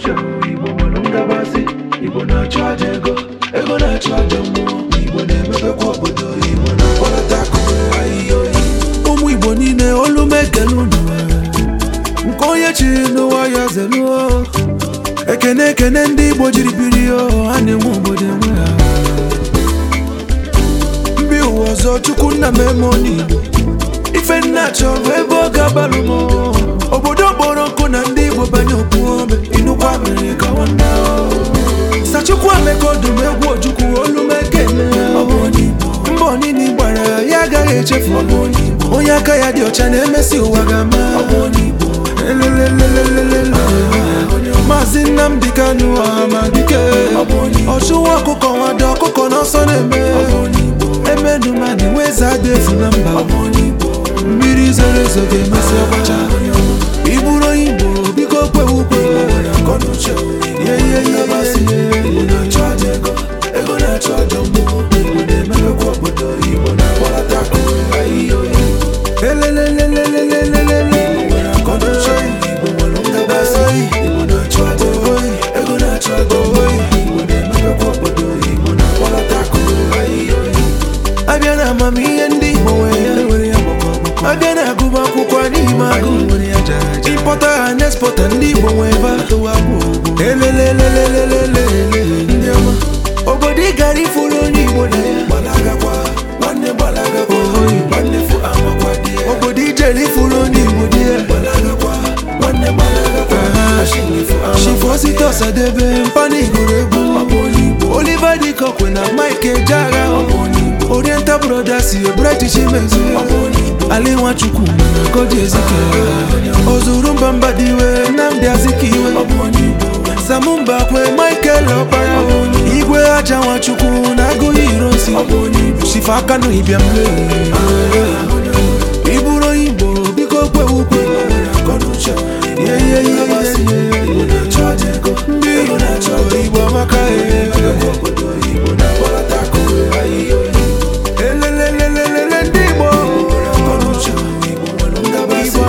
uche igbo nwere igbo na achọ aja ego ego na aja mmụọ igbo na emepekwa obodo igbo na-akpọlata akụkụ ahịhịa oyi ụmụ igbo niile olu m ekele unu nke onye chiri n'ụwa ya zeluo ekene ekene ndị igbo jiri biri ya ha na-enwe obodo enwe ha mbi ụwa ọzọ chukwu nna m eme onye igbo ife nna chọrọ ebe ọ ga-abalụ okodum egwu ojukwu olumeke mbọ onini gbara ya agaghị echefu onye aka ya dị ọcha na-emesi ụwa ga-ama maazị Nnamdi Kanu Amadike ọchụwa ọkụkọ nwado ọkụkọ n'ọsọ na-eme emenumadi weze adịefu na mba mmiri zoro ezo ga-emesi ọgbacha na na-emelekwa obodo igbo na nwere na na achọ na obodo na na amamihe ndị igbo n'ime agụ ịkpọta ha igbo nwe. Ọsadebe Fani gụrụ Oliva Oliver Dikokwe na Mike Ejeagha Oriental Brothers Ebraichi Chimezie Ali Nwachukwu Koji Ezike Ozurumba diwe, Nnamdi Azikiwe Samumba Kwe Michael Ọkpara Igwe Aja Nwachukwu na Agụghị nsi. Shifa Kanu Ibiamle ah, ah, ah.